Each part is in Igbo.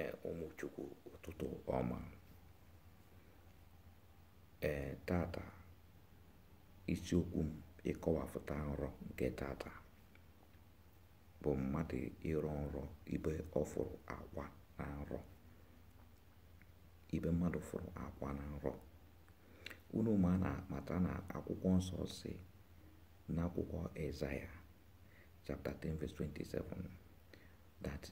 ee ụmụchukwu ụtụtụ ọma ee tata isiokwu m ịkọwapụta nrọ nke tata bụ mmadụ ịrọ nrọ ibe ọ fụrụ akwa na nrọ ibe mmadụ fụrụ akwa na nrọ unu ma a na-amata na akwụkwọ nsọ si n'akwụkwọ Ezaya chapter 10 verse 27 that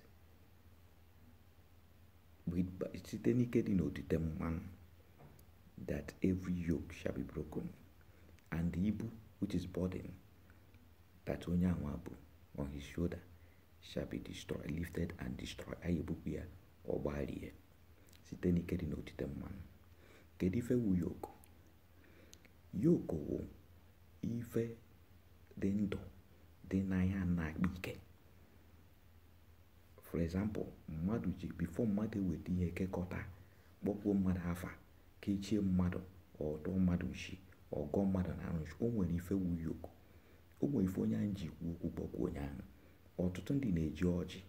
site n'ike n'otite mmanụ that every yoke shall be broken and the ibu which is burden that onye anwa bụ on his shoulder shall be destroyed lifted and destroyed anyị ebupụ ya site n'ike n'otite mmanụ kedu ife wu yoke yoke wụ ife dị ndụ dị n'anya na-akpa for example mmadụ ji bifo mmadụ eweta ihe kekọta kpọkwuo mmadụ afa kechie mmadụ ọdụ mmadụ ji ọgọ mmadụ na arụchi o nwere ife wuyi o nwere ife onye anyị ji kwu okwu kpọkwuo onye ahụ ọtụtụ ndị na-eji ọjị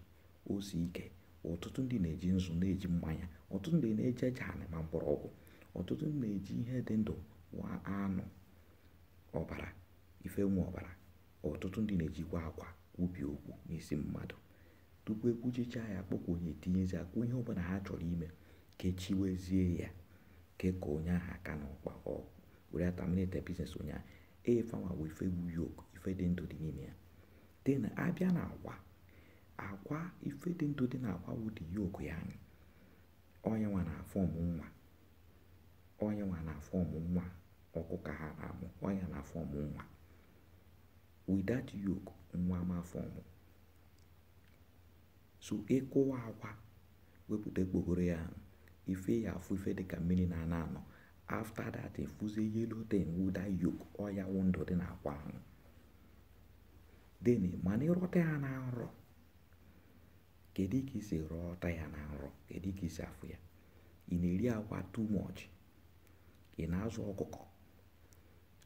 osi ike ọtụtụ ndị na-eji nzu na-eji mmanya ọtụtụ ndị na-eji eji anị ma mgbọrọgwụ ọtụtụ ndị na-eji ihe dị ndụ wa anụ ọbara ife nwe ọbara ọtụtụ ndị na-ejikwa akwa ubi okwu n'isi mmadụ tupu ekwuchicha ya kpọkwunye tinyezi akwụ ihe ọbụla ha chọrọ ime kechiwezie ya keka onye ahụ aka na ọkpa were ataminate biznes onye ahụ efanwa wee ifegbu yok ife dị ndụ dị n'ime ya dị na abịa na akwa akwa ife dị ndụ dị na akwa wụdị yok ya anyị onye nwa na fọm nwa onye nwa na fọm nwa ọkụkọ ha na-amụ onye na fọm nwa widat yok nwa ma fọm so ịkụwa e akwa wepụta ekpokoro ya ife ya afụ ife dịka mmiri na-ana anọ afta dat efuzie yelo ten wuda yok ọya wụ ndụ dị akwa ahụ deni mana ịrọta ya na nrọ kedu ka isi rọta ya na nrọ kedu ka isi afụ ya ị na-eri akwa too much ị na-azụ ọkụkọ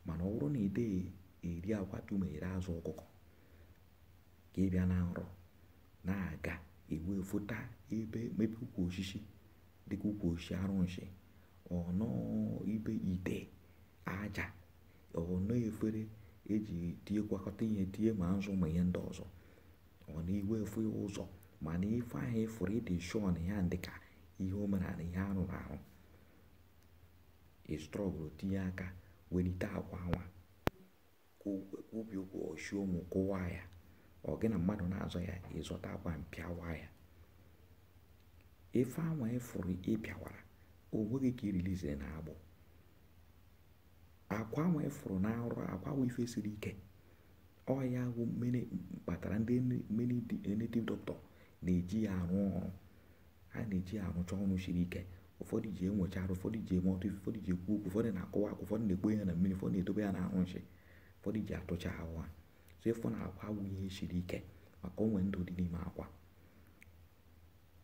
mana ọ na ị eri akwa tumu ere azụ ọkụkọ ka ị bịa na nrọ na-aga ewee fota ebe mepe ukwu osisi dịka ukwu osisi arụnshi ọnọ ibe ite aja ọnọ efere eji tie gwakọta ihe tie ma nzụ ma ihe ndị ọzọ ọna iwe efu ụzọ mana ife ahụ ịfụrụ ịdị shọn ya dịka ihe omenala ihe arụrụ arụ istrọgụlụ tinye aka welite akwa nwa obi ụkwụ oshi ụmụ kụwaa ya ọ gị na mmadụ na-azọ ya ịzọta akwa mpịawa ya ife anwa ịfụrụ ịpịawara onweghị ka irilizie na agbụ akwa anwa ịfụrụ na arụ akwa wụ ife siri ike ọ ya wụ kpatara ndị native doctor na-eji ya arụ ọrụ ha na-eji ya arụcha ọnụ siri ike ụfọdụ ji enwecha arụ ụfọdụ ji eme ọtụ ife ụfọdụ ji ekwu okwu ụfọdụ na-akọwa akwa ụfọdụ na-ekpo ya na mmiri ụfọdụ na-edobe ya na arụ nshi ụfọdụ ji atụcha ahụ ha so na akwa awụghị ihe siri ike maka onwe ndụ dị n'ime akwa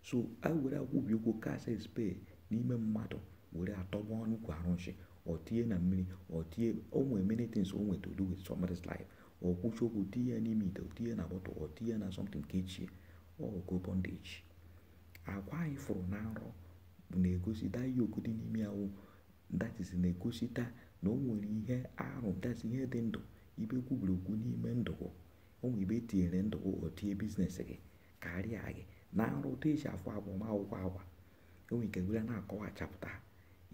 so a were akwụbi ụkwụ kasị spe n'ime mmadụ were atọgba ọnụ kwa arụnshi ọ tinye na mmiri ọ tinye onwe many things o nweta do with somebody's life ọ kwụchi okwu tinye ya n'ime ite tinye na bọtụ ọ tinye na something ka echie ọgo bondage akwa anyị fụrụ na nrọ na-egosi da yoku dị n'ime ahụ that is na-egosita na o nwere ihe arụ that ihe dị ndụ ibe kwubiri okwu n'ime ndụgụ onwe ibe tinyere ndụgụ otie biznes gị karịa gị na nrụ otu eji afụ akwụkwọ agwa enwe ike gwere na-akọwachapụta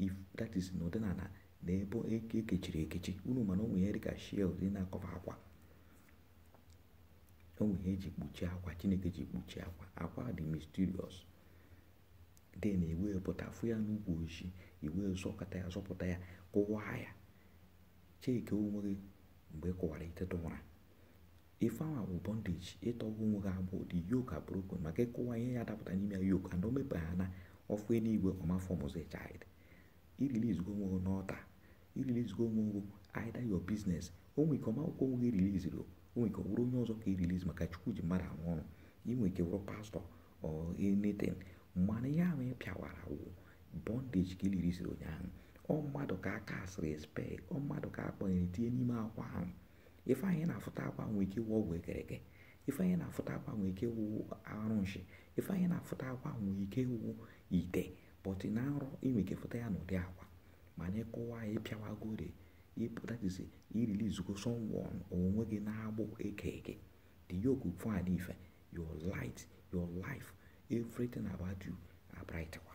if that is na ụdịnala na ebe ekechiri e ekechi unu mana onwe ya dịka shield dị na-akọwa akwa onwe ihe eji kpuchie akwa chineke ji kpuchie akwa akwa dị na den e pụta fụ ya n'ugwu ojii iwe e zọkọta ya zọpụta ya kụwaa ya cheke onwe gị mgbe ị e kụwara tụwara ife ahụ bụ bondage ịtọwa onwe gị abụ dị yoke broken maka ịkụwa ihe ya dapụta n'ime ya yoke na omepe ha na ọfụ eluigwe ọmafọmụzi child iriliz onwe gị n'ọta irilizigo onwe gị either your business onwe ike ọmakwụkwọ onwe gị riliziri onwe ike ọ bụrụ onye ọzọ ka irilizi maka chukwu ji mmadụ anwụ ọrụ inwe ike wụrụ pastọ ọ anything mana ihe ahụ ịpịawara pịawara wụ bondage ka iliriziri ụnyaahụ ọ mmadụ ka aka asịrị spe ọ mmadụ ka akpọnyere tinye n'ime akwa ahụ ife anyị na-afụta akwa nwee ike wụ ọgwụ ekereke ife anyị na-afụta akwa nwee ike wụ arụ nshi ife anyị na-afụta akwa nwee ike wụ ite but na nrọ inwe ike fụta ya n'ụdị akwa mana ịkụwa ya ịpịawagore ịpụtatizi irilizugo sọnwon onwe gị na-agbụ eke eke the yoke of ife your light your life everything about you abrightwa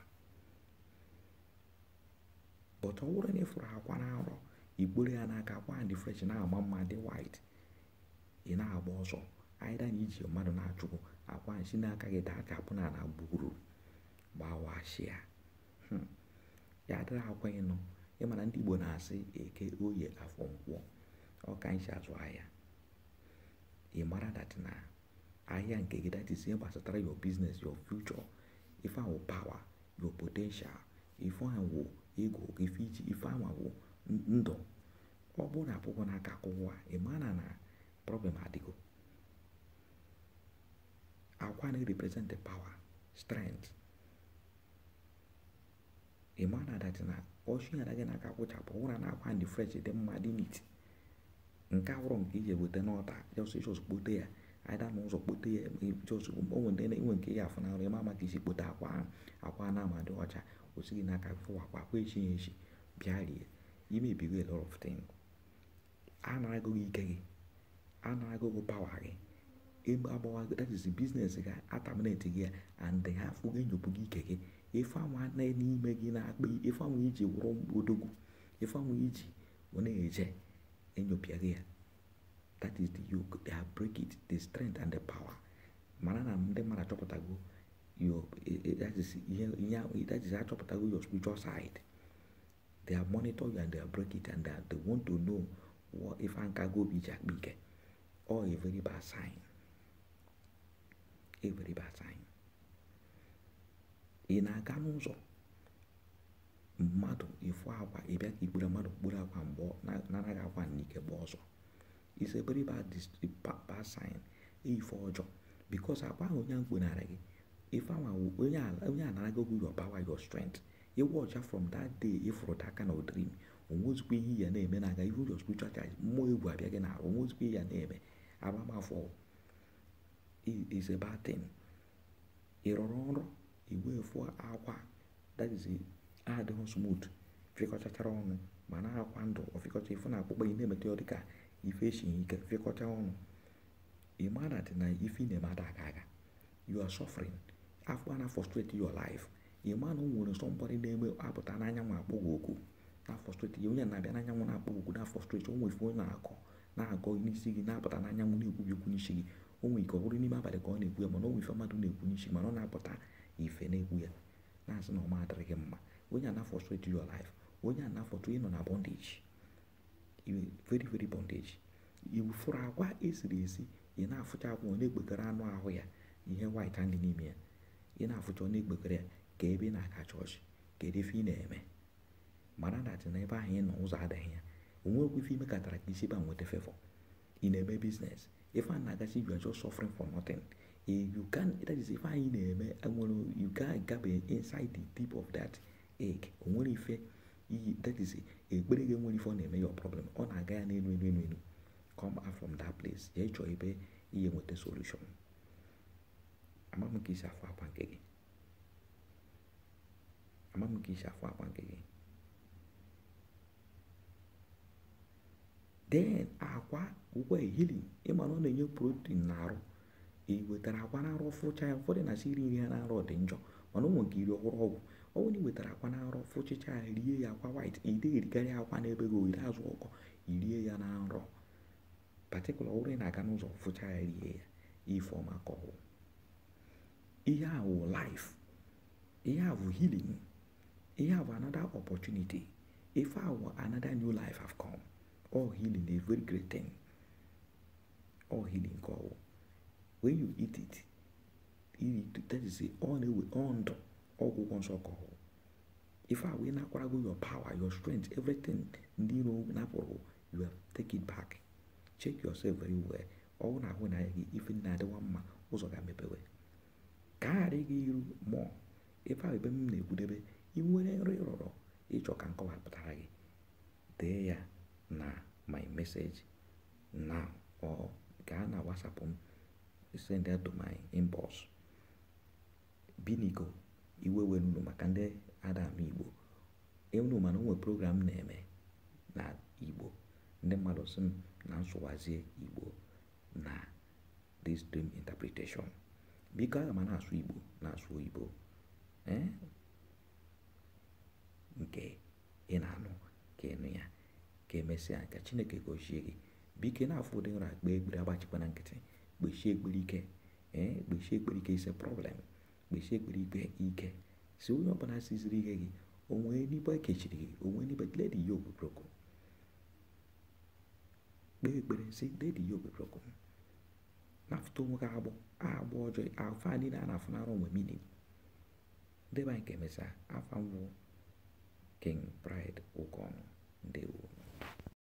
but ọ bụrụ na ị fụrụ akwa na arọ igboro ya n'aka akwa dị fresh na agba mma dị white ị na-agba ọsọ aịda na iji mmadụ na-achụpụ akwa nsi n'aka gị daa ka apụna na gburu gbawashia hmm. ya dịrị akwa ịnọ ịmana ndị Igbo na-asị eke oye afọ ọ ọka nsi azụ ahịa ị mara dat na ahịa nke gị dat is ihe gbasatara your business your future ife ahụ power yo potential ife ahụ ịgụ ife iji ife anwa bụ ndụ ọ bụrụ na akwụkwọ na akwụkwọ ị mara na problem adịgo akwa na-represent power strength ị mara na dati na ọchị ya gị n'aka aka kwụchapụ ụra na akwa ndị fresh dị mma dị nit nke awụrụ nke iji eweta n'ọta jọs kpote ya ada n'ụzọ kpote ya jọs onwe ndị na-enwe nke ya afụnarụ ịma maka isi kpote akwa akwa na-amadị ọcha gị n'aka fụwakwa akwa echighị echi bịa rie imebi a lot of things a na-agụ gị ike gị a gị pawa gị ebe agbawa that is business gị ataminate gị and ha afụ gị gị ike gị ife anwa n'ime gị na-akpa ife anwa iji wụrụ odogwu ife anwa iji na-eje enyopịa gị ya that is the yoke they break it the strength and the power mana na ndị mmadụ achọpụtago your that is that is achọpụtago your spiritual side they are monitor you and they are break it and they, want to know if ankago bụ be akpa ike or a very bad sign a very bad sign ị na-aga n'ụzọ mmadụ ịfụ akwa ịbịa ka ikpere mmadụ kpuru akwa mgbe nanaghị akwa n'ike gba ọzọ is a very bad, sign ife ọjọọ because akwa ahụ onye mkpunara ife onye a narago who your power your strength ịwụ ọcha from dat day ịfụrụ that kind of dream ihe ya na-eme na aga ihu your spiritual charge mmụọ egwu na-arụ onwezikwa ihe ya na-eme agbamafọ is a bad thing ịrọrọ nrọ igwe fụ akwa that is adịghị smooth fịkọchachara ọnụ ma na akwa ndụ ọfịkọcha ife na akpụkpọ na-emeta ọnụ dị na ife na aka you are afọ a na-afọstrate your life ị ma na o nwere somebody na-eme apụta n'anyanwụ akpọ gị oku na-afọstrate ya onye na-abịa n'anyanwụ na-akpọ gị oku na-afọstrate o ife onye na-akọ na-agọ n'isi gị na-apụta n'anyanwụ na-ekwubi okwu n'isi gị o nwere ike ọ n'ime abalị ka ọ na-ekwu ya mana nwefe mmadụ na-ekwu n'isi mana ọ na-apụta ife na-ekwu ya na-asị na ọma mma onye na ịnọ na veri veri esiri esi ị na-afụcha na-ekpekere anụ ahụ ya ihe dị n'ime ya ị na-afụta na ikpekere ya ka ebe ị na-aga chọọchị kedu ife ị na-eme mara datị na ebe ahụ ị nọ ụzọ adịghị ya onwekwa ife katara ka isi ba nweta fefọ ị na-eme biznes ife a na-agachi you are just suffering for nothing you can that is ife anyị na-eme nwere you gabe inside the deep of that egg o nwere ife iyi that is ekpere gị nwere ife ọ na-eme your problem ọ na-aga ya n'elu elu elu elu come out from that place ya ịchọ ebe ihe nweta solution ama m ka isi afụ akwa nke gị ama m ka akwa nke gị then akwa ụgwọ ehili ịma na ọ na-enye protein n'arụ ị wetara akwa n'arụ fụcha ya ụfọdụ na-asị iri nri ha n'arụ dị njọ mana ụmụ gị ọhụrụ ọgwụ ọ bụrụ na ị wetara akwa n'arụ fụchicha ya rie ya akwa white ị dịghị erikarị akwa n'ebe gị oyiri azụ ọkọ irie ya na nrọ patikụla ọhụrụ ị na-aga n'ụzọ fụcha ya rie ya ife ọma ka ọhụụ Here have life. Here have healing. Here have another opportunity. If our another new life have come, all healing is very great thing. All healing call. When you eat it, eat it that is the only way on the ọgwụgwọ nsọ kọọ ife a wee nakwarago your power your strength everything ndị iro napụrụ you have take it back check yourself very well ọ na when I even gị ife ndị na-adịwa mma ụzọ ga-emepewe ka ghara gị iru mmụọ ebe ebe m na-ekwudebe ị nwere nri rụrụ ịchọ ka nkọwapụtara gị dee ya na my message na ọ gaa na WhatsApp m send ya to my inbox biniko maka ndị adam igbo enu mana onwe program na-eme na igbo ndị mmadụ si na nsụwazie igbo na this dream biko aga m na-asụ igbo na-asụ oyibo nke ị na-anụ ka ịnụ ya ka emesịa ka chineke gozie gị biko na-afụ ụdị nra akpa egbiri agbachikwana nkịtị kpechie egbiri ike ee kpechie egbiri ike ise prọblem kpechie egbiri ikpe ike si onye ọbụla siziri ihe gị onwee n'ibe ekechiri gị onwee n'ibe ledi ya obobroko kpee ekpere si ledi ya obobroko nafutomu kaabo aaboojo afaanina anafunaaroma minin ndeban kemesa afanwo king pride ukono ndewo